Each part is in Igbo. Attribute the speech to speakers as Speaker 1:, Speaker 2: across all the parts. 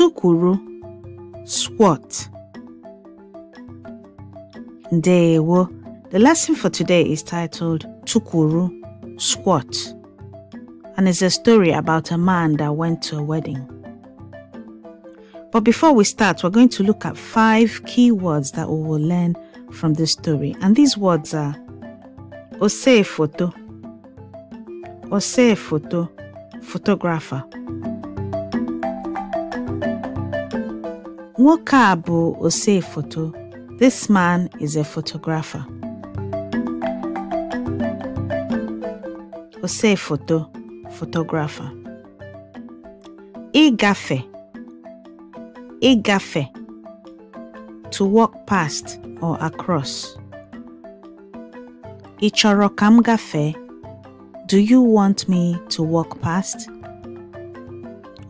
Speaker 1: Tukuru, squat ndewo the lesson for today is titled tukuru squat and it's a story about a man that went to a wedding but before we start we're going to look at five key words that we will learn from this story and these words are ose photo ose photo photographer Nwoke a bụ ose foto. This man is a photographer. Ose foto, photographer. Ịgafe. Ịgafe. To walk past or across. Ị chọrọ ka m gafee? Do you want me to walk past?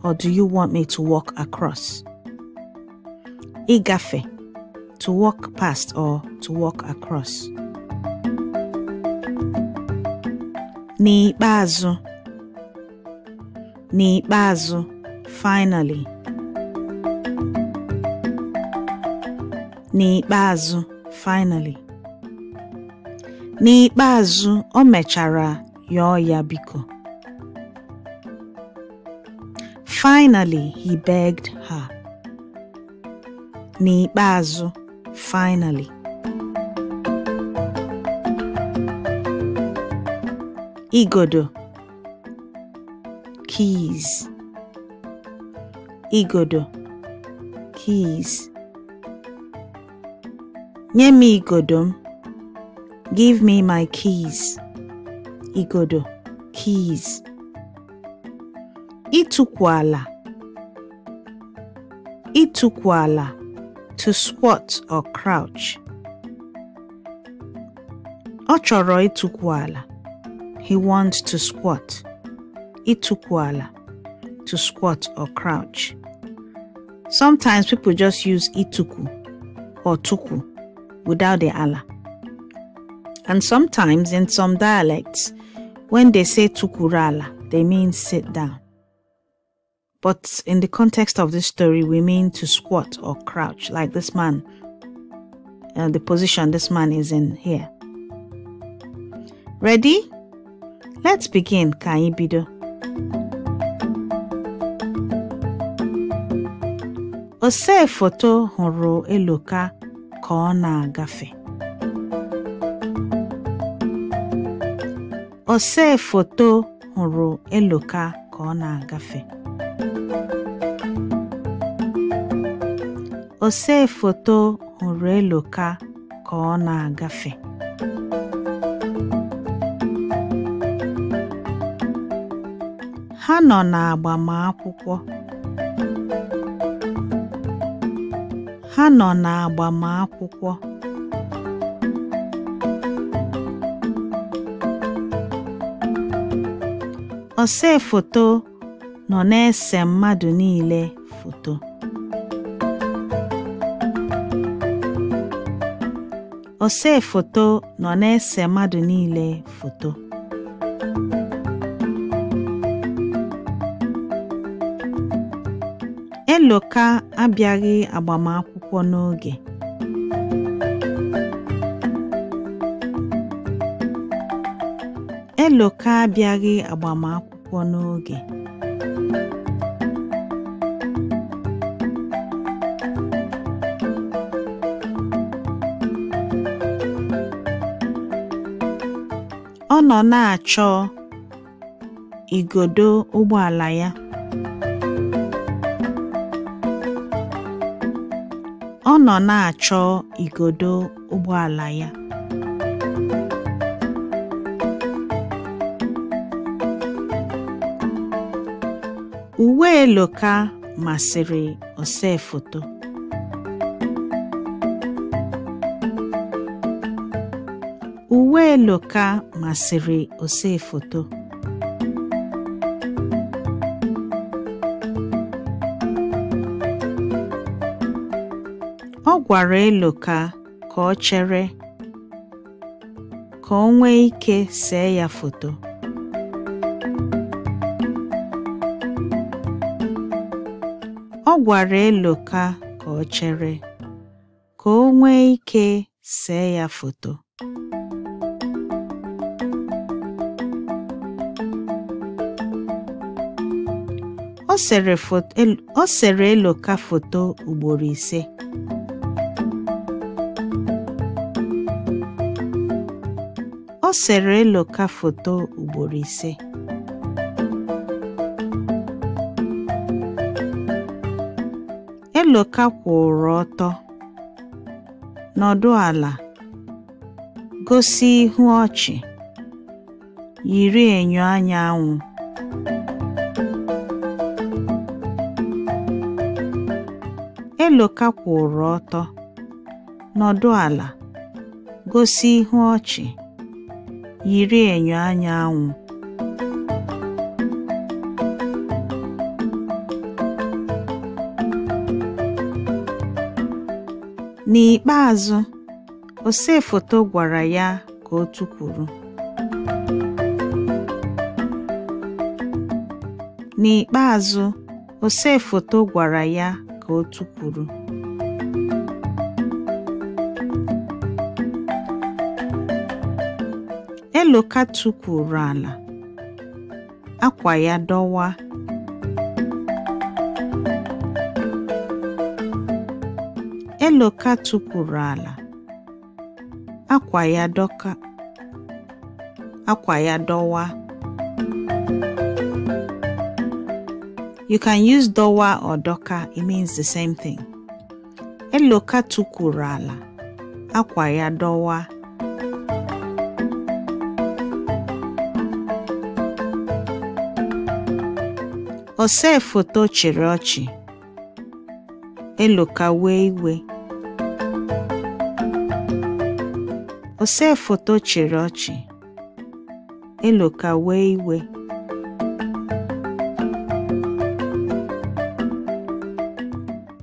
Speaker 1: Or do you want me to walk across? igafe, to walk past or to walk across. N'ikpeazụ, n'ikpeazụ, finally. N'ikpeazụ, finally. N'ikpeazụ, o mechara yọọ ya biko. Finally, he begged N'ikpeazụ, finally, igodo keys igodo keys nye m igodo m give me my keys igodo keys ịtụkwu ala ịtụkwu ala to squat or crouch. Ọ chọrọ ịtụkwu ala. He wants to squat. Ịtụkwu ala. To squat or crouch. Sometimes people just use ituku or tuku without the ala. And sometimes in some dialects, when they say tukurala, they mean sit down. But in the context of this story, we mean to squat or crouch like this man, uh, the position this man is in here. Ready? Let's begin, Kaibido. Ose foto horo Eloka kona gafe. Ose foto horo Eloka kona gafe. osee foto hụrụ Eloka ka ọ na-agafe ha nọ n'agbamakwụkwọ ha nọ nọ na-ese mmadụ niile foto Ose foto nọ na-ese mmadụ niile foto Eloka abịaghị agbamakwụkwọ n'oge Eloka abịaghị agbamakwụkwọ n'oge Ọ nọ na-achọ igodo ụgbọala ya. Uwe Eloka masịrị ose foto. uwe Eloka masịrị osefoto ka ọ chere foto ọ gwara Eloka ka ọ chere ka o nwee ike see ya foto ọ sere Eloka foto ugboro ise Eloka foto ugboro ise Eloka kwụrụ ọtọ nọdụ ala gosi ihu ọchị yiri enyo anya anwụ Eloka kwụrụ ọtọ, nọdụ ala, gosi ihu ọchị, yiri enyo anyanwụ anwụ. N'ikpeazụ, ose gwara ya ka o tukwuru. N'ikpeazụ, ose foto gwara ya otu kwuru Eloka tụkwuru ala akwa ya dọwa Eloka ala akwa ya dọka akwa ya dọwa You can use dowa or doka, it means the same thing. Eloka tukuru ala, akwa ya dowa. Ose foto chịrị ọchị, eloka wee iwe. Ose foto chịrị ọchị, eloka wee iwe.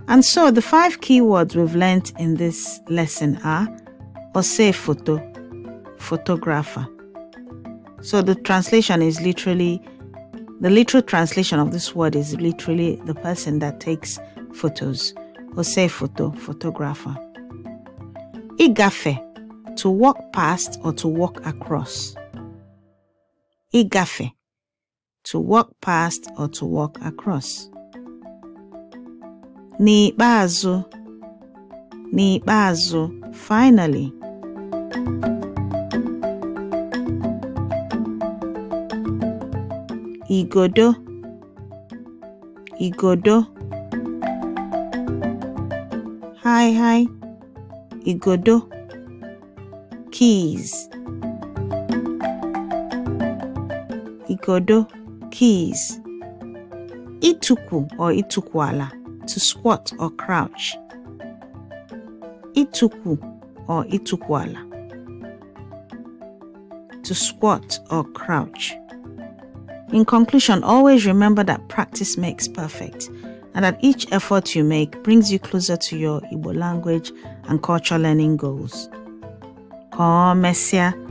Speaker 1: And so the five keywords we've learnt in this lesson are Ose photo, photographer. So the translation is literally, the literal translation of this word is literally the person that takes photos. Ose photo, photographer. Igafe, to walk past or to walk across. Igafe, to walk past or to walk across. N'ikpeazụ, n'ikpeazụ, finally. Igodo, igodo. Haihai! igodo. Keys. Igodo, keys. Ịtụkwu ọ ịtụkwu ala. to squat or crouch. Ituku or itukwala. To squat or crouch. In conclusion, always remember that practice makes perfect and that each effort you make brings you closer to your Igbo language and culture learning goals. Messiah.